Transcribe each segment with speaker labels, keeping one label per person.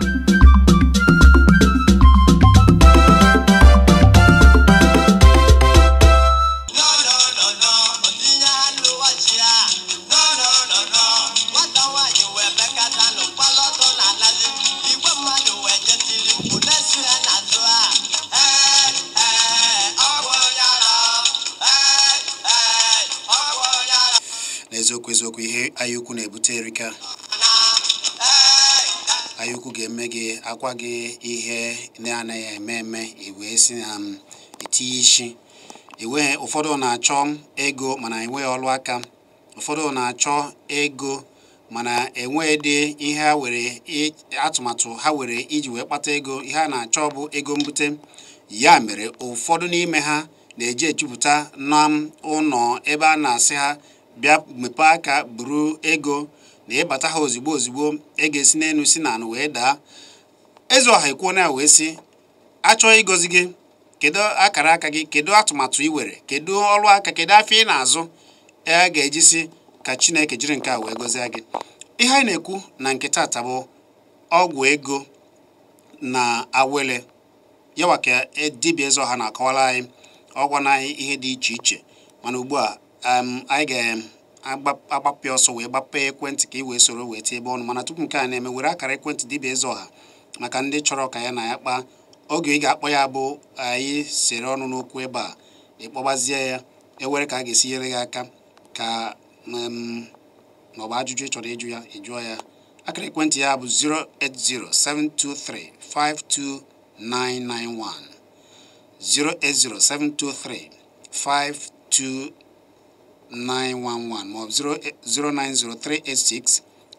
Speaker 1: thank you
Speaker 2: anaghị eme eme iwee si na m um, etinye isi enweghị ụfọdụ na-achọ ego mana enweghị ọrụ aka ụfọdụ na-achọ ego mana enweghịdị ihe ha were atụmatụ ha were iji wee kpata ego ihe a na-achọ bụ ego mbute ya mere ụfọdụ n'ime ha na-eji ejupụta na um, ụlọ ebe a na-asị ha bịa mepee aka buru ego na ịbata ha ozigbo ozigbo ego esi n'elu si na anụ wee daa eze ọha ekwuo na ya wee sị achọghị ịgọzi gị kedu akara aka gị kedu atụmatụ ị were kedu ọrụ aka kedu afọ ị na-azụ a e ga-ejisi ka chineke jiri nke a wee gọzie gị ihe anyị na-ekwu na nke taata bụ ọgwụ ego na awele yawa ka e, dibịa eze ọha na-akọwara anyị ọgwụ na anyị ihe dị iche iche mana ugbu a anyị ga-agbapụ ọsọ wee gbapụ ekwentị ka ị wee soro wee tie ebe ọnụ mana tupu nke a na-eme were akara ekwentị dibia eze ọha maka ndị chọrọ ka ya na ya kpaa oge ị ga-akpọ ya bụ anyị sere ọnụ n'okwu ebe a ịkpọgbazie ya ewere ka a ga-esi nyere gị aka ka ma ọ bụ ajụjụ ị chọrọ ịjụ ya ịjụọ ya akara ekwentị ya bụ 08072352991 08072352911 ma ọ bụ 0903866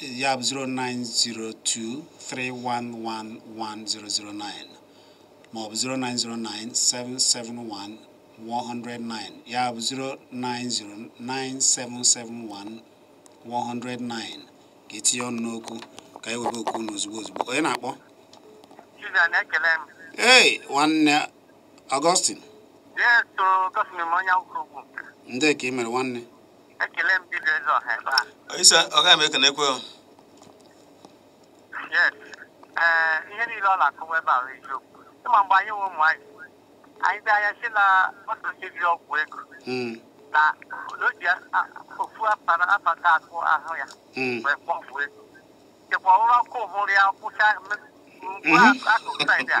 Speaker 2: ya bụ 0902 3111009 ma ọ bụ 0909 771 109 ya bụ 090 109 ka etinye ọnụ n'okwu ka e webe okwu n'ozugbo ozugbo onye na-akpọ na-ekele m. ee nwanne Augustine ndị ka ị mere nwanne
Speaker 1: ekele m dibịa eze ọha ebe
Speaker 2: a ise ọga m ekene ekwe
Speaker 1: yes ee ihe niile ọ na-akọwa ebe a eziokwu ịma mgbe anyị nwe ụmụ anyị anyị bịa anya si na ọtụtụ ọgwụ ego na o ji ofu apata akụ ahụ ya wee kpọ ọgwụ ego chekwa ọrụ ọkụ ụmụrụ ya kwụcha akụkụ saịdị a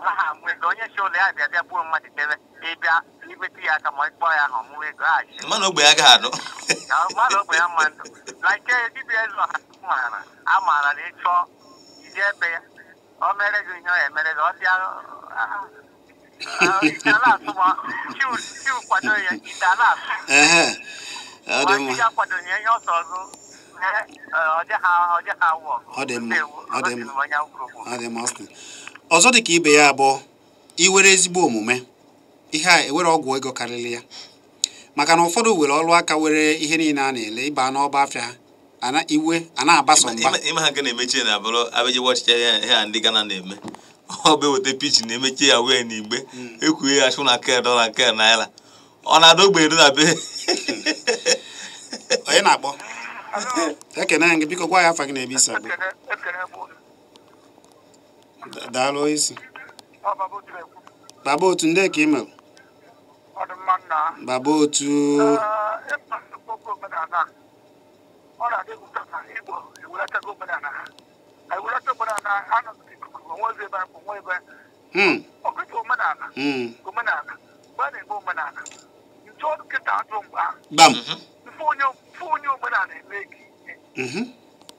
Speaker 1: ọkwa ha ka onye chi ụlọ ya bịa bịa gbuo mmadụ debe ịbịa ya aka ma ịkpọ ya na ọmụwa ego aghachi mmadụ ogbe ya gaghị anụ mmadụ ogbe ya mma ndụ na nke eh, dibịa eze maara a maara na ịchọ ije ebe ya o mere gị ihe ọ emere gị ọ bịa ite ah, ah. ah, ala asụ ma chiu kwado ya ọ ma
Speaker 2: ọ dị mma ọ dị mma ọzọ dị ka ibe ya abụọ iwere ezigbo omume ihe a ewere ọgwụ ego karịrị ya maka na ụfọdụ were ọrụ aka were ihe niile a na-ele ịba n'ọba afịa ha ana iwe a na-abasa mba
Speaker 3: ịma ha nke na-emechi na abụrụ abịaji ọchịcha ihe a ndị Gana na-eme ọ bụ eweta pichin na-emechi ya wee na igbe ekwughe ya chụ na ke dọla ke naira ọ na-ada ogbe na be onye na-akpọ
Speaker 2: ekene gị biko gwa ya afa gị na-ebe isi abụọ daalụ isi baba otu ndị ka ị baba otu hmm.
Speaker 1: hmm.
Speaker 3: bam onye omenala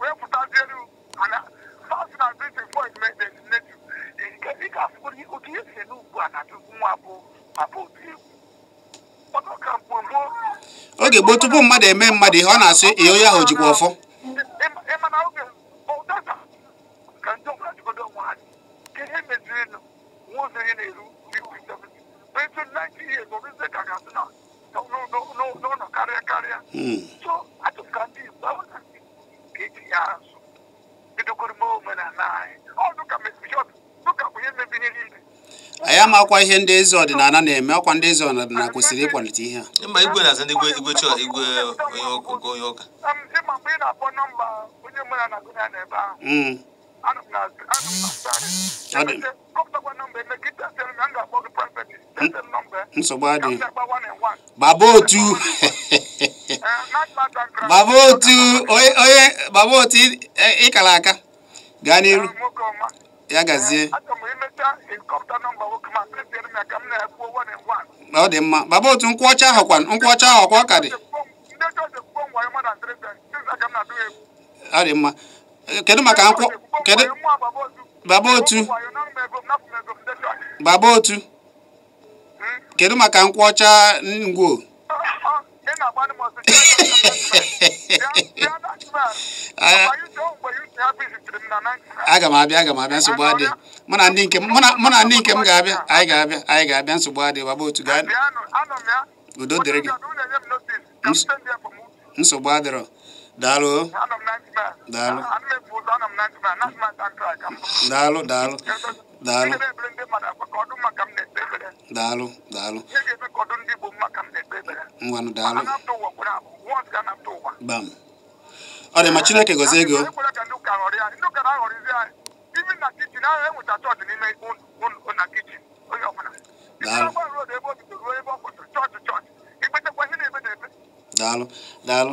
Speaker 2: wee pụtazie
Speaker 1: fast ihe si n'ugbu nwa bụ
Speaker 2: oge gboo tupu mmadụ eme mmadụ ihe ọ na-asị ihe onye ahụ jikwa ọfọ
Speaker 1: ịmana oge ụdada ka ya azụ bidokoro anyị
Speaker 2: ọdụ ihe ndị ezi ọdịnala na-eme akwa ndị eze ọdịnala
Speaker 3: kwesịrị ịkwalite ihe a ma igwe na ndị igwe chọọ igwe um, onye ụka
Speaker 1: na nsogbu adịghị
Speaker 2: baba otu baba otu onye baba otu ịkara aka gaa n'iru ya gazie ọ dị mma baba otu nkwụ ọcha ahụ kwa nkwụ ọcha ahụ ọkwa ọ ka dị ọ dị mma kedu maka nkwụ kedu baba otu baba otu kedu maka nkwụ ọcha ngwo aga m abịa aga m abịa nsogbu adị mụ na ndị nke m ga-abịa anyị ga-abịa anyị ga-abịa nsogbu adị baba otu gaa udo dịrị gị nsogbu adịrọ daalụ daalụ daalụ daalụ daalụ daalụ daalụ ngwanụ daalụ bam ọ dị ma chineke gozie ego daalụ daalụ daalụ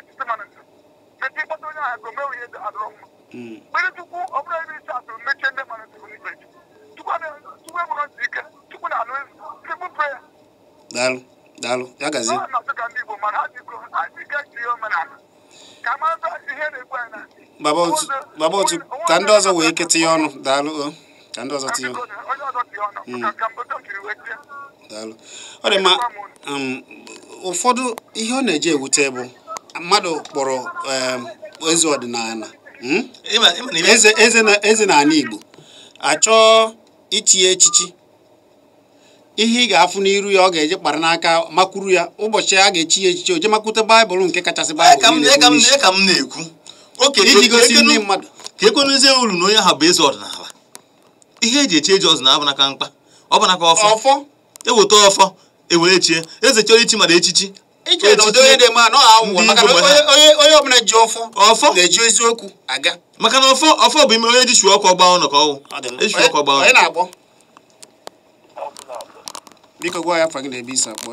Speaker 1: adọrọ mma mere ọ bụrụ isi atụrụ mechie ndị mmadụ tụrụ n'ikpe enwere ike na anụ
Speaker 2: daalụ daalụ ya gazie baba otu ka ndị ọzọ wee tinye ọnụ daalụ ka ndị ọzọ tinye daalụ ọ dị mma ụfọdụ ihe ọ na-eji ewute bụ mmadụ kpọrọ um, Hmm? eze ọdịnala eze na n'ala Igbo achọọ itinye echichi ihe ị ga-afụ n'iru ya ọ ga-eje kpara n'aka makwuru ya ụbọchị a ga-echi ya echichi oje makwute baịbụl nke kachasị baịbụl
Speaker 3: ka m na-ekwu iji e gosi ndị mmadụ ka ekwenezie uru na onye ha bụ eze ọdịnala ihe e eji echi eji ọdịnala bụ naka mkpa ọ bụ naka ọfọ eweta ọfọ ewere chie eze chọrọ ichi mara echichi
Speaker 1: eji ejido onye na-eme maka na
Speaker 3: onye ọbụla ji ọfọ eziokwu aga maka na ọfọ ọfọ bụ ime onye jishu ọkụ ọgba ọnụ ka ọwụ ọgba ọnụ na
Speaker 2: biko gwa ya afọ gị na-ebe isi akpọ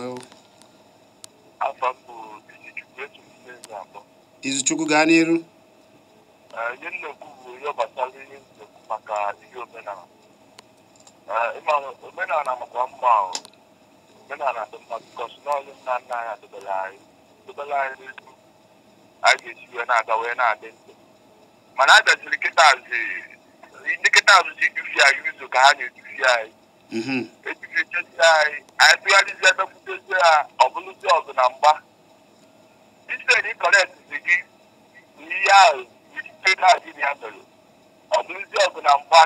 Speaker 2: izuchukwu gaa n'iru
Speaker 1: omenala makwa mma omenala atụmatụkọsi n'ọlụ na nna anyị adobela anyị dobela anyị n'ezi anyị ga-esi wee na-aga wee na-adị mana a bịaziri kịta azị kịta azụ ji edufi anyị ka ha na-edufi anyị ejifechezi anyị anyị tụgharịzi emekwutezi ha ọbụlụzi ọgụ na mgba iseri kọrektzi gị ihe ahụ ite kaadị mere na mba.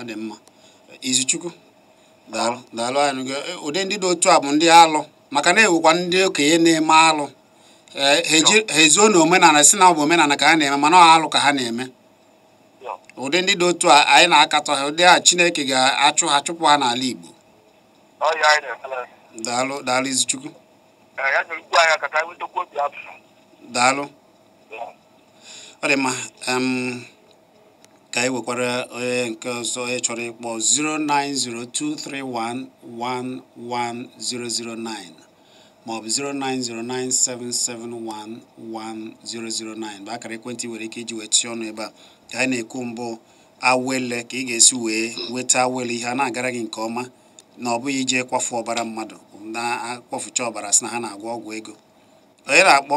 Speaker 2: ọ dị mma izuchukwu daalụ daalụ anyị e, ụdị ndị dị otu a bụ ndị alụ maka na ewekwa ndị okenye na-eme alụ e, ha ezuo na omenala si na ọ omenala ka ha na-eme mana ọ alụ ka ha na-eme ụdị ndị dị otu a anyị na-akatọ ha ụdị a Chineke ga-achụ ha chụpụ ha n'ala Igbo daalụ daalụ Izichukwu daalụ ọ dị mma ka e nwekwara onye eh, nke ọzọ onye chọrọ ịkpọ 09023111009 maọbụ 09097711009 bụ akara ekwentị nwere ike iji wee tụọ ọnụ ebe a ka anyị na-ekwu mbụ awele ka ị ga-esi wee nweta awele ihe a na-agara gị nke ọma na ọ bụghị ije kwafu ọbara mmadụ na-akpọfucha ọbara si na ha na-agwọ ọgwụ ego onye na-akpọ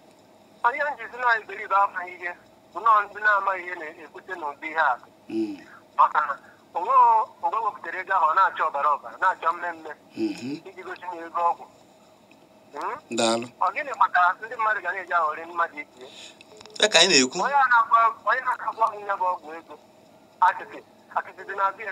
Speaker 1: onye njizi na-ebe ibe amaghị ihe nnọọ ndị na-amaghị ihe na-ekwute n'ụdị ihe a maka na onwe wepụtara ego ahụ ọ na-achọ ọbara ọbara na-achọ mmemme iji gosi na ego ọgwụ ọ gịnị maka ndị mmadụ ga na-eji aghọrị mmadụ itinye onye na-agwa m nye bụ ọgwụ ego akịtị akịtị dị na-abịa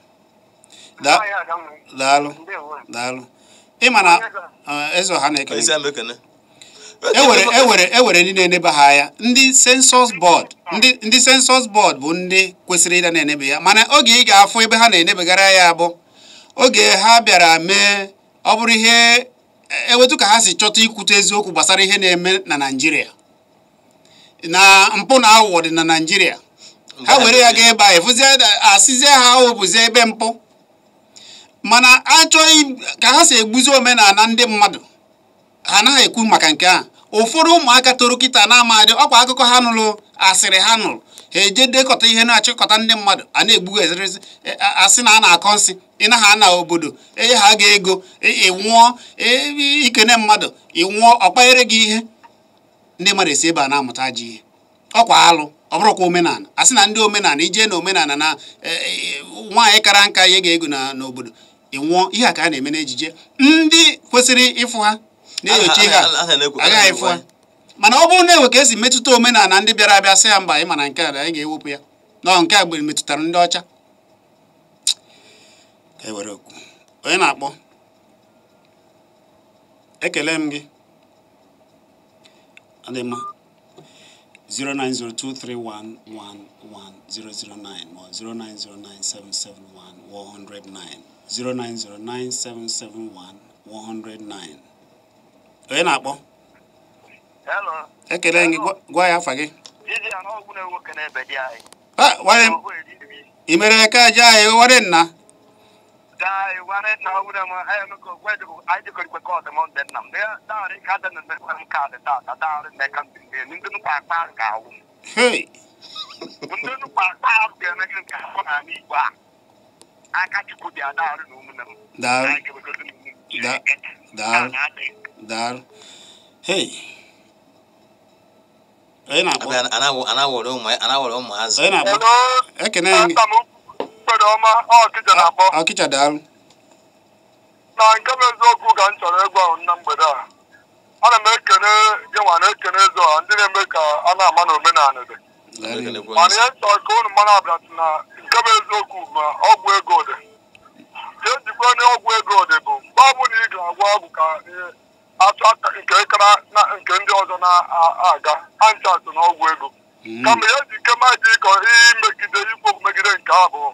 Speaker 2: daalụ daalụ ịma na eze ọha na-ekele ewere ndị na-eneba ha ya ndị sensọs bọọd ndị sensọs bọọd bụ ndị kwesịrị ịda na-enebe ya mana oge ị ga-afụ ebe ha na-enebegara ya bụ oge ha bịara mee ọ bụrụ ihe ewetu ka ha si chọta ikwute eziokwu gbasara ihe na-eme na Naịjirịa na mpụ na aghụghọ dị na Naịjirịa ha were ya gaa ebe a efụzie asịzie ha ahụ bụzie ebe mpụ mana achọghị ka ha si egbuzi omenala ndị mmadụ ha naghị ekwu maka nke a ụfọdụ ụmụaka toro kịta na-amadị ọkwa akụkọ ha nụrụ asịrị ha nụrụ ha eje dekọta ihe na-achịkọta ndị mmadụ a na egbugo ezerezi e, asị na a na-akọ nsị ịnaha na obodo ee ha ga ego e, ịnwụọ e, ikene mmadụ ịnwụọ ọkpanyere gị ihe ndị mmadụ esi ebe a na-amụta ji ihe ọkwa alụ ọbụrụkwa omenala asị na ndị omenala ijee na omenala na nwaanyị kara nka ihe ga ego n'obodo ị nwụọ ihe a ka a na-eme n'ejije ndị kwesịrị ịfụ ha
Speaker 3: na-enyocha ihe agaghị ịfụ ha
Speaker 2: mana ọ bụrụ na ewe ka esi metụta omenala ndị bịara abịa sị ya mba anyị mana nke a anyị ga-ewepụ ya ọ nke a gbere metụtara ndị ọcha e onye na-akpọ ekele m gị adị mma 09023111009 ma 09097711109 0909771 onye na-akpọ ekele gị gwa ya afa gị ị mere eke aja anyị were nna Hey! Akachukwu dị adarụ na ụmụnne
Speaker 3: m. Hey. na-akpọ?
Speaker 1: Ekene ọma, na-akpọ. daalụ. Na nke m eziokwu ka m chọrọ ịgwa na mgbede a. Ana m ekene gịnwa na ekene eze a ndị na-eme ka a na-ama na omenala dị. Mana ihe nchọ ka unu mmanụ abịa na nke bụ eziokwu ma ọgwụ ego dị ihe njikwa ọgwụ ego dị bụ mgbe ọ na ị ga-agwa ọgwụ ka atụ achọ nke kara na nke ndị ọzọ na-aga anchatụ na ọgwụ ego hmm. kama ihe ji nke maji ịkọ imegide ikwu megide nke abụọ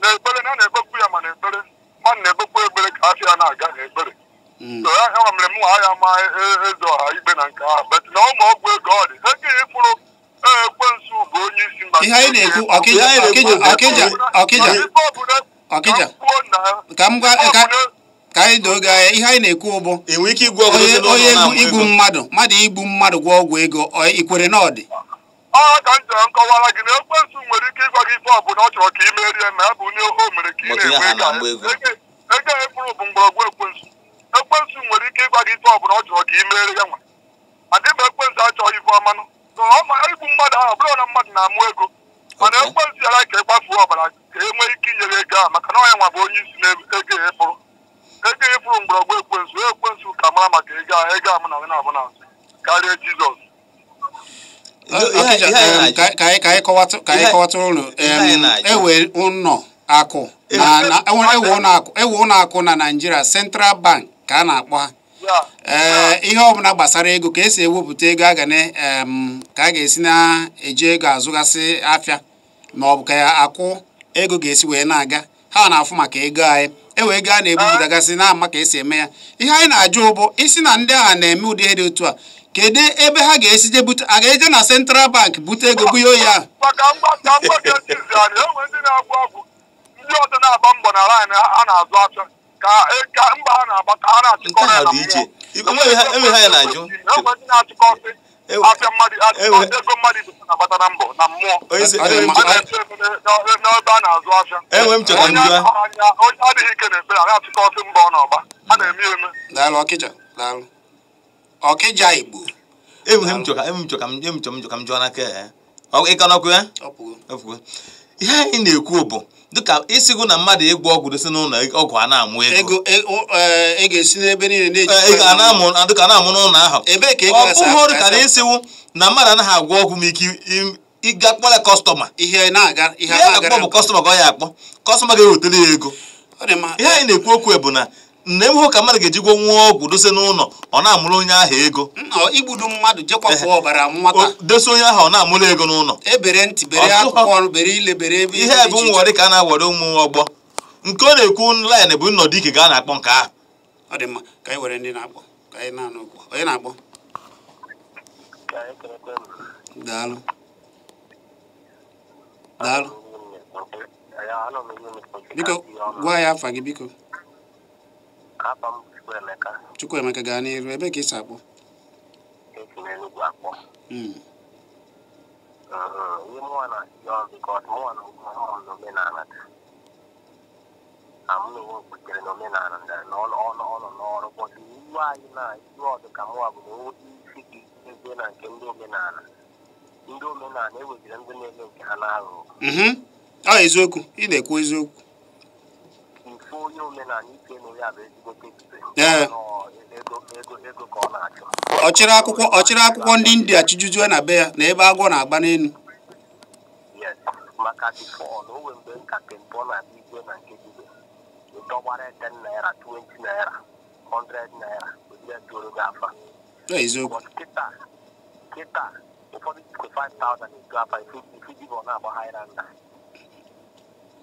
Speaker 1: na ekpere na na-ekpekwu ya ma na ekpere mmadụ na-ekpekwu ekpere ka afọ ya na-aga na ekpere hmm. so ya mere m ha ya ma e, e, eze ọha ikpe na nke ahụ bet na ụmụ ọgwụ ego ọ dị
Speaker 2: ihe anyị na-ekwu ọkịja ọkịja ọkịja ka m ka anyị doo gị anya ihe anyị na-ekwu ụbụ onye igbu mmadụ mmadụ igbu mmadụ gwa ọgwụ ego ikwere na ọ dị
Speaker 1: ka m gị na ekwensu nwere ike ịgwa gị ife ọ chọrọ ka ị merie na ekwensu nwere ike ife ọ chọrọ ka e ị merie ya nwa achọghị ife na ọ ma igbu mmadụ ahụ bụrụ na mmadụ na-amụ ego mana ekwe nziara ka e ọbara ka e nwee ike inyere ego ahụ maka na ọnya nwa bụ onye isi na ego ịfụrụ e ego ịfụrụ e mgbọrọgwụ ekwensu ekwensu ka mara maka ego ahụ ego ahụ na abụ na azụ karịa jizọs
Speaker 2: ka anyị kọwatụrụ unu ewe ụnọ akụ ewe ụnọ akụ na naijiria e central bank ka a na-akpọ ha ee eh, ihe ọbụla gbasara ego ka esi ewepụta ego a ka a ga-esi na-eji ego azụgasị afịa ma ọ bụ ka akwụ ego ga-esi wee na-aga ha na-afụ maka ego anyị ewe ego a na-ebupụtagasị na ama ka esi eme ya ihe anyị na-ajụ ụbụ isi na ndị agha na-eme ụdị ihe dị otu a kedu ebe ha ga-esi je bute a ga-eje na Central Bank bute ego na-azụ
Speaker 1: ahụ E, ka mba ha na-agba ka ha na-achịkọ ha na mmụọ ha ya na-ajụ achịkọ afịa mmadụ ego mmadụ na-agbata na mbọ na mmụọ n'ebe a na-azụ afịa enwe m ha onye adịghị ike na-ekpere a na-achịkọ ọsị mba ọ ha na-eme eme daalụ ọkịja daalụ ọkịja igbo
Speaker 3: m m jụọ ya. ịkanọkwe ihe anyị na-ekwu bụ dịka ịsịgụ na mmadụ ịgwọ ọgwụ dosi n'ụlọ ọgwụ a na-amụ ego dịka na-amụ n'ụlọ ahụ ọ bụghị na ịsịwụ na mmadụ anaghị agwọ ọgwụ ma ike ịga kpọrọ kọstọma ihe na-akpọ bụ kọstọma ka ọ ya akpọ kọstọma ga-ewetara ya ego ihe anyị na-ekwu okwu bụ na nne m hụ ka mmadụ ga-ejikwa nwa ọgwụ dose n'ụlọ ọ na-amụrụ onye ahụ ego igbudu mmadụ jekwapụ ọbara nwata dose onye ahụ ọ na-amụrụ ego n'ụlọ ebere ntị bere akwụkwọ ọrụ bere ile bere ebe ihe bụ nwere ka a na-awere ụmụ ọgbọ nke ọ na-ekwu laịn bụ nnọdụ ike ga a na-akpọ nke
Speaker 2: ahụ biko gwa ya afa gị biko
Speaker 1: akpọ m Chukwuemeka
Speaker 2: Chukwuemeka gaa n'iru ebe ka ị si akpọ esi n'Enugwu hmm. mm-hmm.
Speaker 1: na-achị ọrụ na ụmụ m n'omenala taa n'ọrụ na ọdụ ka mụnwa na ndị omenala ndị omenala e ndị nke ha na
Speaker 2: mm-hmm. ọ eziokwu ị na-ekwu eziokwu
Speaker 1: bụ onye omenala ike nụ ya bụ ezigbo ego ka ọ
Speaker 2: na-achọ ọchịrị akwụkwọ ọchịrị akwụkwọ ndị india chijujue na be ya na ebe agwọ na-agba n'elu
Speaker 1: maka difọọ na onwe mgbe nkatị mbụ na na nke 20 naira 100 naira odire toro na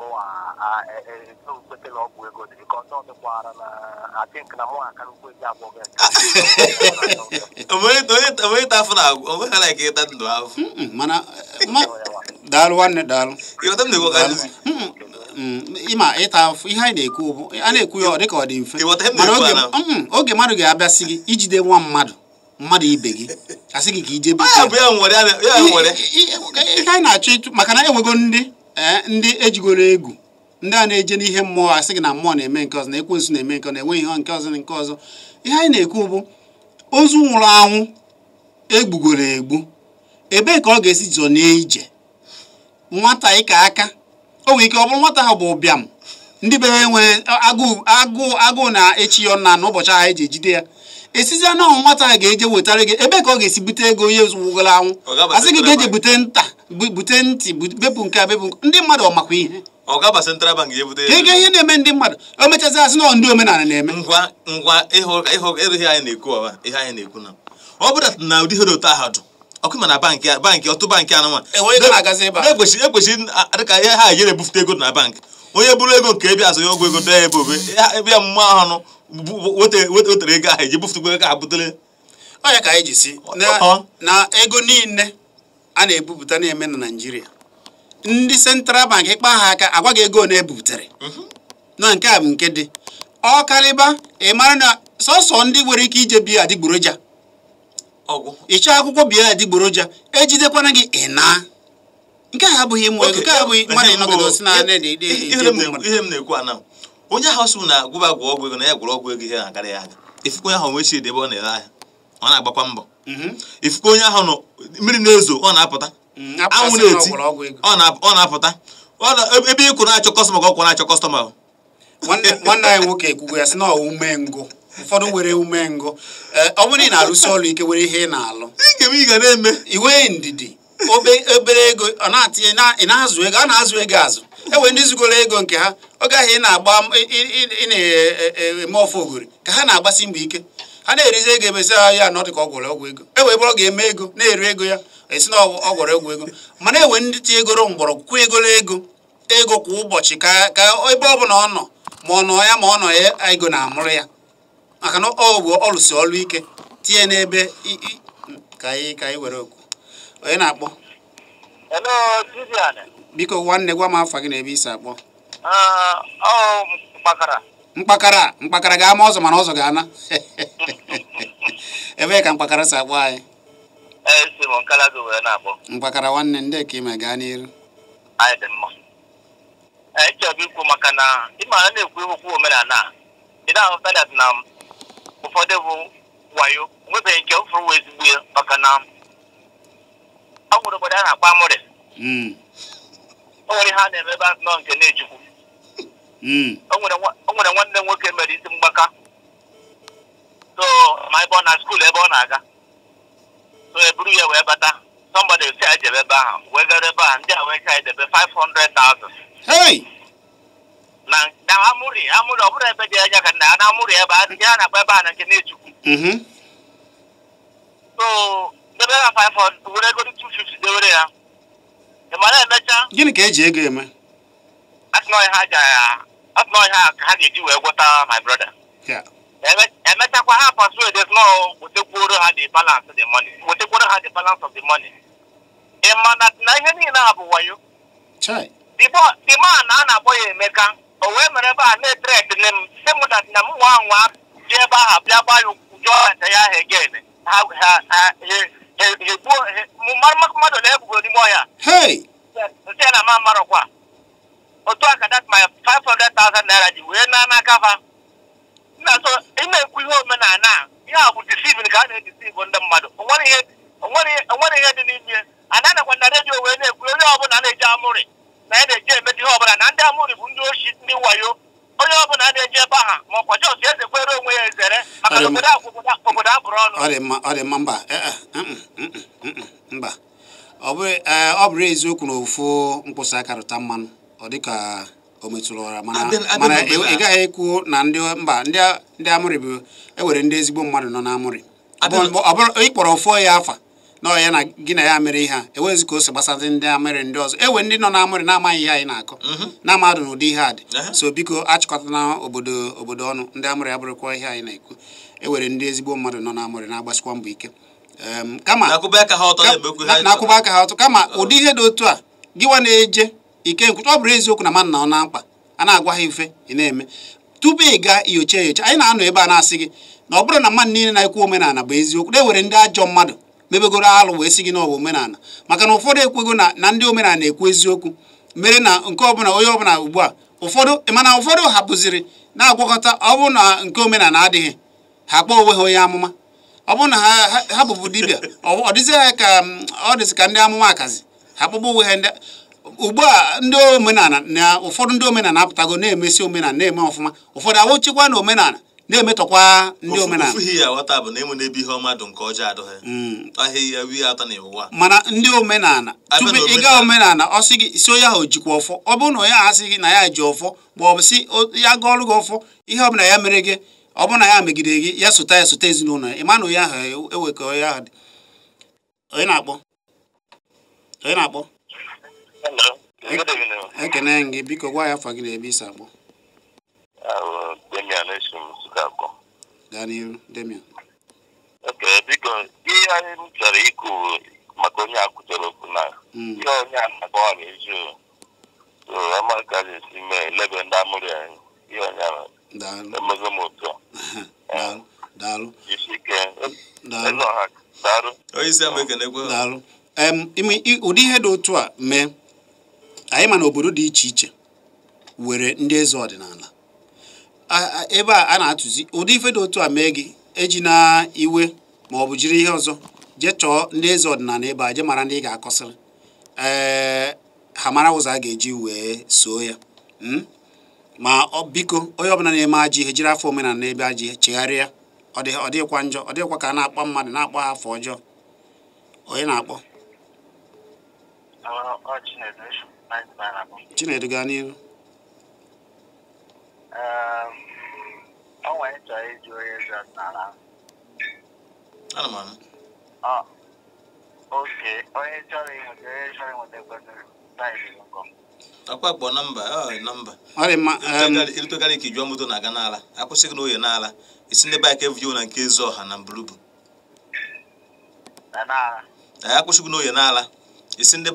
Speaker 1: mụwa ekwetela ọgwụ ego dịrị ka dịkwara na atink na mụwa aka nkwe ji abụọ gị
Speaker 3: onye ta afọ na-agwụ onwe ha na ịta ndụ mana
Speaker 2: daalụ nwanne daalụ ịma ịta ihe anyị na-ekwu bụ a na-ekwu ya dịka ọ dị mfe mana oge mmadụ ga-abịasị gị ijide nwa mmadụ mmadụ ibe gị asị gị ka ije ihe anyị na-achọ maka na enwego ndị Eh, ndị ejigoro egwu ndị a na-eje n'ihe mmụọ asị gị na mmụọ na-eme nke ọzọ na ekwensu na-eme nke na enweghị ihe nke ọzọ nke ọzọ ihe anyị na-ekwu bụ ozu nwụrụ anwụ egbugoro egbu ebee ka ọ ga-esi jọ ije nwata ịka aka o nwere ike ọ bụrụ nwata ha bụ ụbịam ndị be enwe agụụ na-echi ya ọna n'ụbọchị ahụ eji ejide ya esizie na ọnwụ nwata a ga-eje wetara gị ebe ka ọ ga-esi bute ego ihe wụgoro anwụ asị gị ga-eje bute nta bute ntị bepụ nke a bepụ ndị mmadụ ọ makwa ihe ego ihe na-eme ndị mmadụ o
Speaker 3: mechazị asị na ndị omenala na-eme ngwa ngwa ịrụghị anyị na-ekwu ọwa ihe anyị na-ekwu na ọ bụrụ na ụdị ihe dị otu ahụ dụ ọkụ ma na bankị bankị ọtụ bankị anụnwa ekwesịrị dịka ihe ha yere ebufute ego na bankị onye bụrụ ego nke ebe azụ ya ọgwụ ego dee ebe obe ebe mmụọ ahụ wetere ego ahụ eji bufutugbo ego ahụ butere
Speaker 2: ọnya ka anyị ji si na ego niile a na-ebupụta na-eme na naijiria ndị central bank ịkpa ha aka agwaghị ego na ebubutere na nke a bụ nke dị ọ karịba ị mara na sọsọ ndị nwere ike ije biya adịgboroja ịchọ akwụkwọ biya adịgboroja ejidekwana gị ị nke a abụghị mmụọ ego nke a
Speaker 3: abụghị mmadụ ịnọgide osi na ihe m na-ekwu ana onye ahụ sụ na gwụba gwụ ọgwụ ego na ya gwụrụ ọgwụ ego ihe na-agara ya aga ifukwa onye ahụ nwe chi ebe ọ na-ere ahịa ọ na-agbakwa mbọ mhm. ifukwa onye ahụ nọ mmiri na-ezo ọ na-apụta mhm, anwụ na-eti ọ na-apụta ebe ịkwụ na-achọ kọstọma ka ọ na-achọ kọstọma nwanne
Speaker 2: anyị nwoke ekwugo ya sị na ume umengụ ụfọdụ nwere ume umengụ ọ bụrụ ị na-arụsi ọrụ ike were ihe ị na-alụ iwe ndidi obere ego ị na-azụ ego a na-azụ ego azụ enwere ndị zugoro ego nke ha ọ gaghị na-agba na-eme e, ọfọ ogori ka ha na-agbasi mgbe ike ha na-erizi ego emesi ha ah, ya anọdụ ka ọ gwọrọ ọgwụ ego e bụrụ ga-eme ego na-eri ego ya esi na ọ ọgwụ ego mana enwere ndị ti egoro mgbọrọgwụ kwụ ego ego kwa ụbọchị ka ka ebe ọ bụla ọ nọ ma ọ nọ ya ma ọ nọ ya ego na-amụrụ ya maka na ọ bụ ọlụsi ọlụ ike tinye n'ebe ka anyị were okwu onye na-akpọ biko nwanne gwa m afa gị na ebe isi akpọ
Speaker 1: ah,
Speaker 2: mkpakara mkpakara ga-ama ọzọ mana ọzọ ga-ana ebee ka mkpakara si akpọ anyị e, mkpakara nwanne ndị ka ime gaa n'iru
Speaker 1: e, na na ụfọdụ bụ wayo nwebeghị nke ezigbo ya maka na ọ gwụrụ obodo a na akpa amụrị hmm. o nwere ha na-eme nọ nke na-echukwu hmm. o nwere nwanne nwoke mere isi mgbaka so ma ebe ọ na skuul ebe ọ na-aga so eburu ya wee bata somebody si a jebe ebe ahụ wee ebe ndị a wee ka 500,000 na na amụrị amụrị ọ bụrụ ebe dị anya ka na amụrị ebe a na-agba ebe na nke na-echukwu mm-hmm. so ha 500 ya gịnị
Speaker 2: ka eji ego eme
Speaker 1: ha ga-eji wee gwọta my brother emechakwa ha persuade snow wetekwuoro ha the balance money wetekwuoro ha the balance of the money ị ma na ihe niile a bụ wayo the man a na-akpọ ya emeka o wee mere ebe a na-etrek nne m sị m dat na m nwa nwa ji ebe ahụ bịa gbaa ya ya ahụ egen mmadụ na ebugo n'ime ọhịa nsị na otu aka dat my 500,000 naira ji wee na n'aka fa na so ihe omenala ihe a bụ ka a na-edisivu ndị mmadụ onwere ihe dị n'ime na na wee na-ekwu onye na-eji amụrị na na-eji emedi ihe ọbụla na ndị amụrị bụ ndị oshi ndị wayo onye ọbụla na-eji ebe aha ma ọkwa jọs eze kwere onwe ya ezere maka na obodo obodo abụrụ ọnụ ọ dị
Speaker 2: mma mba e, e, mm, mm, mm, mba ọ bụrụ e, eziokwu na ofu mkpụsa aka mmanụ ọ dịka o metụrụ ọra mana ị gaghị ekwu na ndị mba ndị amụrị bụ ewere ndị ezigbo mmadụ nọ na amụrị ịkpọrọ fọ ya afa nọọ ya na gị na ya mere ihe a enwezi ka o so gbasazị ndị amịrị ndị ọzọ ewe ndị nọ n'amịrị na-amaghị ihe anyị na-akọ mhm. na amadụ na ụdị ihe a dị so biko achịkọtana obodo obodo ọnụ ndị amịrị abụrụkwa ihe anyị na-ekwu ewere ndị ezigbo mmadụ nọ n'amịrị na-agbasikwa mbọ ike kama na-akwụba aka ha ọtọ kama ụdị ihe dị otu a gịwa na-eje ike nkwụcha ọ bụrụ eziokwu na mmadụ na ọ na mkpa a na-agwa ha ife ị na-eme tupu ị gaa nyocha enyocha anyị na-anọ ebe a na-asị gị na ọ bụrụ na mmadụ niile na-ekwu omenala bụ eziokwu na ndị ajọ mmadụ mebegoro alụ wee si gị n'ọwa omenala maka na ụfọdụ ekwego na na ndị omenala na-ekwu eziokwu mere na nke ọbụla onye ọbụla ugbu a ụfọdụ mana ụfọdụ hapụziri na-agwakọta ọ bụrụ na nke omenala adịghị ha kpọọ onwe ha onye amụma ọ bụrụ na ha hapụbụ dibia ọ dịzị ka ọ dịzị ka ndị amụma akazi ha kpọgbụ onwe ha ndị ugbu a ndị omenala na ụfọdụ ndị omenala apụtago na-emesi omenala na-eme ọfụma ụfọdụ awụchikwa na omenala na-emetọkwa
Speaker 3: ndị omenala
Speaker 2: mana ndị omenala tupu ị ga omenala ọ sị gị si onye ahụ jikwa ọfọ ọ bụrụ na onye ahụ asị gị na ya ji ọfọ ma si ya ga ọrụ gị ọfọ ihe ọbụla ya mere gị ọ bụrụ na ya megidere gị ya sụta ya sụta ezinụlọ ya ị ma na onye ahụ ewekọ e onye ahụ dị onye na-akpọ onye na-akpọ ekene gị biko gwa ya afa gị na ebe isi akpọ Demian Eshim Sukakọ. Daniel Demian. Ok, biko
Speaker 1: ihe anyị m chọrọ ikwu maka onye akwụchara okwu na hmm. ihe onye a na-akọwa n'ezi amaka ga-esi mee lebe ndị amụrụ ya ihe onye emego m ụtọ jisike
Speaker 3: ezeọha daalụ onye isi daalụ
Speaker 2: ụdị ihe dị otu a mee anyị ma na obodo dị iche iche were ndị eze ọdịnala ebe a a na-atụzi ụdị ife dị otu a mee gị eji na iwe ma ọ bụ jiri ihe ọzọ jee chọọ ndị eze ọdịnala ebe a je mara ndị ị ga-akọsịrị ee ha mara ụzọ a ga-eji wee soo ya hmm? ma biko onye ọbụla na-eme ajọ ihe jiri afọ omenala n'ebe ajọ ihe chegharịa ọ dịghịkwa njọ ọ dịghịkwa ka a na-akpọ mmadụ na-akpọ ha afọ ọjọọ onye na-akpọ chinedu gaa n'ihu
Speaker 1: ọ ehm, nwere chọrọ ịjụ onye m anụ. oke onye chọrọ ịnweta onye chọrọ ịnweta kwesịrị
Speaker 3: akpakpọ nọmba nọmba ịrụtụgara ehm, ka ijụọ moto na-aga n'ala akwụsịghị n'oye n'ala isi ndị baịka evuyo na nke ezi ọha na mbulubu n'oye n'ala isi ndị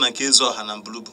Speaker 3: na nke ezi ọha na mbulubu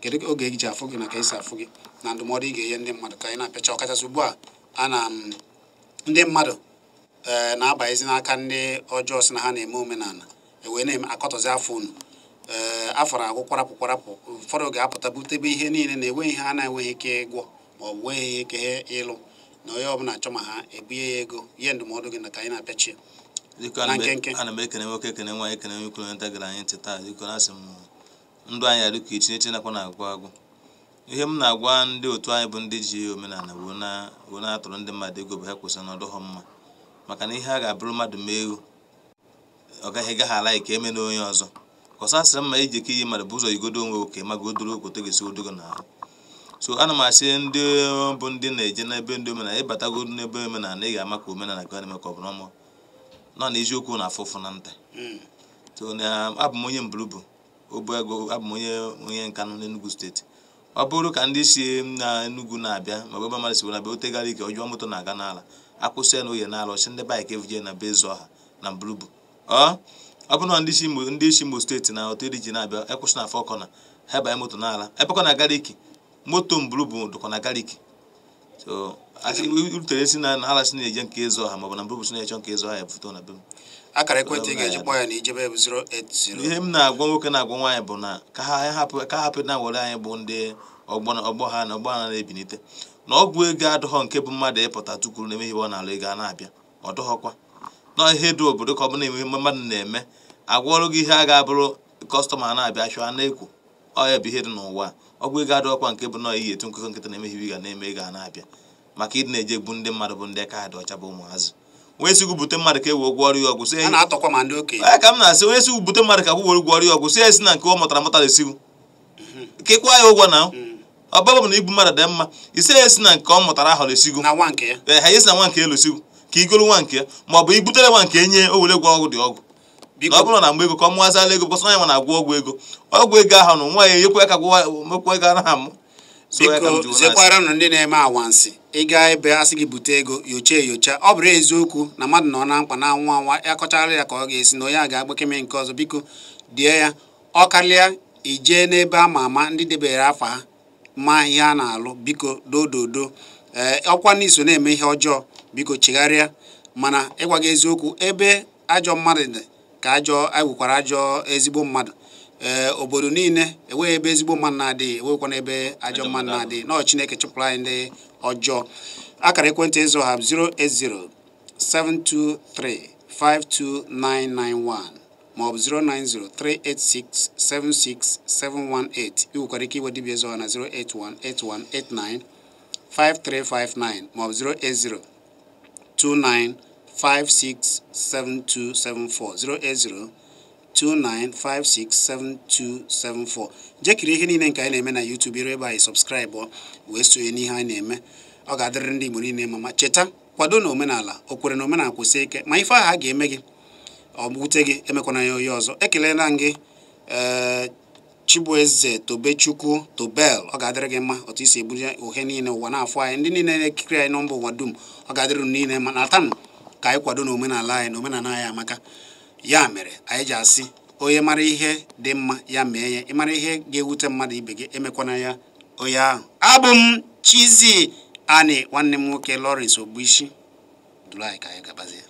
Speaker 2: kedu oge e ji afụ gị na ka esi afụ gị na ndụmọdụ ị ga-enye ndị mmadụ ka anyị na-apịacha ọkachasị ugbu a ana ndị mmadụ ee eh, na-abanyezi n'aka ndị ọjọọ si na ha na-eme omenala ewee na-eme akọtọzi afọ unu ee eh, afọ na-agwụ kwarapụ kwarapụ ụfọdụ ga-apụta butebe ihe niile na enweghị ha na-enweghị ike ịgwọ ma ọ bụ nweghị ihe ike ịlụ na onye ọbụla achọ ma ha ebunye ya ego ihe ndụmọdụ gị na ka anyị na-apịachi
Speaker 3: ana m ekene nwoke ekene nwaanyị ekene gara anyị ntị taa asị m ndụ anyị arụ ka echi nakwa na-agwụ agwụ ihe m na-agwa ndị otu anyị bụ ndị ji omenala wee na-atụrụ ndị mmadụ ego bụ ha kwesịrị na ọdụghọ mma maka na ihe a ga-abụrụ mmadụ mee egwu ọ gaghị gaghị ala ka eme na onye ọzọ kọsasịrị mma iji e ike iyi mmadụ bụ ụzọ igodo onwe oke ma gị odoro okoto ga-esi odogo na so ana m asị ndị bụ ndị na-eje n'ebe ndị omenala ịbatago n'ebe omenala ị ga-ama ka omenala ka na-eme ka ọ bụrụ ọma nọ na eziokwu na afụfụ na nta hmm. abụ m onye mbụrụ bụ obu ego abụ onye onye nkanụ n'Enugwu steeti ọ bụrụ ka ndị si na Enugu na-abịa ma ọ bụ ebe mmadụ si na be otegara ike ọjọọ moto na-aga n'ala akwụsị ya na n'ala ọchị ndị baik evuje na be ọha na mbulubu ọ bụrụ na ndị si ndị isi Imo steeti na otu ji na-abịa ekwụsị na afọ kọna ha banye moto n'ala ebekọ na galik moto mbulubu dụkwa na galik so rutere si na ala si na-eje nke ezu ọha ma na mbulubu si na-eche nke ezu ọha ya bufụta na be akara ekwentị ga-eji ya na ijebe bụ 080 ihe m na-agwa nwoke na-agwa nwaanyị bụ na ka ha hapụ na were anyị bụ ndị ọgbọ ha na ọgbọ ha na-ebinite na ọgwụ ego adọghọ nke bụ mmadụ ịpụta tukwuru na emeghiwe ego a na-abịa ọ dọghọkwa na ihe dị obodo ka ọ bụla emume mmadụ na-eme agwọrụ gị ihe a ga-abụrụ kọstọma na-abịa chụọ na-ekwu ọ bụ ihe dị n'ụwa ọgwụ ego adọghọkwa nke bụ na iyi etu nkụkọ nkịta na-emeghiwe ga na-eme ego a na-abịa maka ịdị na-eje egbu ndị mmadụ bụ ndị kaadị ọcha bụ ụmụazị onye si bute mmadụ ka e wee gwọrọ ya ọgwụ sị ka m na-asị onye si gwubute mmadụ ka gwụwere gwọrọ ya ọgwụ sị ya si na nke ọ mụtara mụtara esiwu mhm. ka ịkwa ya ụgwọ na mhm. ọbaba na ibu mmadụ dị mma ise ya esi na nke ọ mụtara ahọrọ esigo ha esi na nwa nke elu sigo ka igolu nwa nke ma ọ bụ ibutere nwa nke enye owere were dị ọgwụ na ọ na mgbe ego ka ọ mụazala ego na-agwọ ọgwụ ego ọgwụ nwa ya ya ka mekwa ego biko zekwara
Speaker 2: ndị na-eme awansị ịga ebe a sị gị bute ego yocha eyocha ọ bụrụ eziokwu na mmadụ nọ na mkpa na nwa anwa ya kọchara ya ka ọ ga-esi na onye a ga-agbakeme nke ọzọ biko die ya ọ karịa ijee n'ebe ama ama ndị debere afọ ha ma ihe a na-alụ biko dododo ee ọkwa n'iso na-eme ihe ọjọọ biko chegharịa mana ịgwa gị eziokwu ebe ajọ mmadụ dị ka ajọ egwukwara ajọ ezigbo mmadụ Eh, obodo niile enweghị ebe ezigbo mma na-adịghị enweghịkwana ebe ajọ mma na-adị nọọ chineke chụpụrụ anyị ndị ọjọọ akara ekwentị ịzụ ha 08072352991 maọbụ 09038676718 ị nwekwara ike iwe dibịa ịzụ ha na 08181895359 maọbụ 08029567274 080 07063637294 jekiri ihe niile nke anyị na-eme na YouTube ire ebe anyị sọbskraịbụ wee sonye n'ihe anyị na-eme ọ ga-adịrị ndị Igbo niile mama cheta kwado na omenala okwere na omenala kwụsị ike ma ife aha a ga-eme gị ọ gị emekwana ya onye ọzọ ekelela m gị eh, Chibueze Tobechukwu Tobel ọ ga-adịrị gị mma otu isi eburu ohe niile ụwa na-afọ anyị ndị niile na-ekiri anyị nọmba ụwa dum ọ ga-adịrị niile ma na ka anyị kwado na omenala anyị na omenala anyị amaka ya mere anyị ji asị onye mara ihe dị mma ya mee ya ịmara ihe ga-ewute mmadụ ibe gị emekwana ya onye ahụ abụ m chizi Ani nwanne m nwoke Lawrence Ogbuisi duru anyị ka anyị gabazie